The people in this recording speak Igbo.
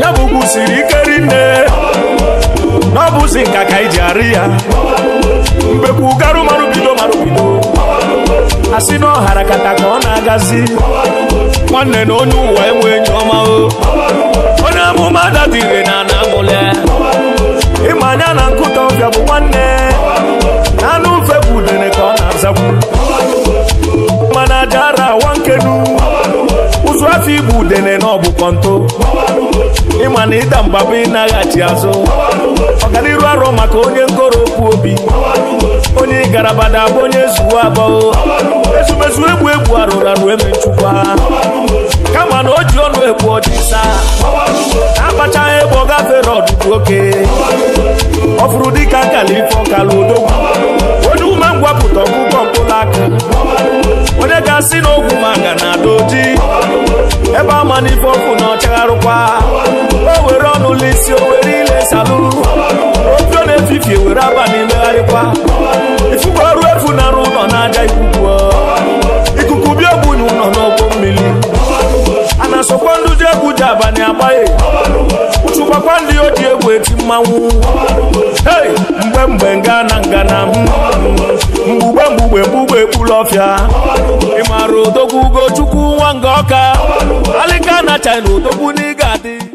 ya bụ kwụsiri ike rinne n'ọbụzi nka ka iji arị ya mbekwu garụ marụbido marụbido asị n'ọhara kata ka ọ na-agazi nwanne na onye ụwa enwe enyi ọma o onye amụma dadire na na amụle ịma anya na nkụta ọbịa bụ nwanne na anụ mfe bụ udene ka ọ na-azakwu mana jara ara awa nkenu ụzụ afọ igbu udene na bụ kọnto ịma na ịda mba bụ ịnaghachi azụ ọganiru arọ maka onye ngoro okwu obi onye igarabada bụ onye zuwo abụọ ezumezu egbu egbu arụrụ arụ emechukwa kama na o ji ọnụ egbu ọdịsa abachaghị egbe ọ gafere ọdụdụ oke ọ fụrụ dịka nkala ife odogwu onye ume ngwapụta ọgwụgwọ mkpụrụ aka onye ga-asị na ogwu manga na ada oji ebe ama n'ife ọkụ na ọchagharụkwa ọkwa ifufe ọrụ efu nara ụlọ n'aja ikuku ikuku bịa bụ ụlọ n'ọkpọ mmiri a na-asọkwa ndị ji egwu ji abalị agbaghị ụchụkwakwa ndị oji egwu eti mmanwụ hei mgbe mgbe na ngana mgbugbe mgbugbe mgbugbe ekpuru ọfịa ịmara odogwu ugochukwu nwa nga ọka alịka na china odogwu n'ịga adị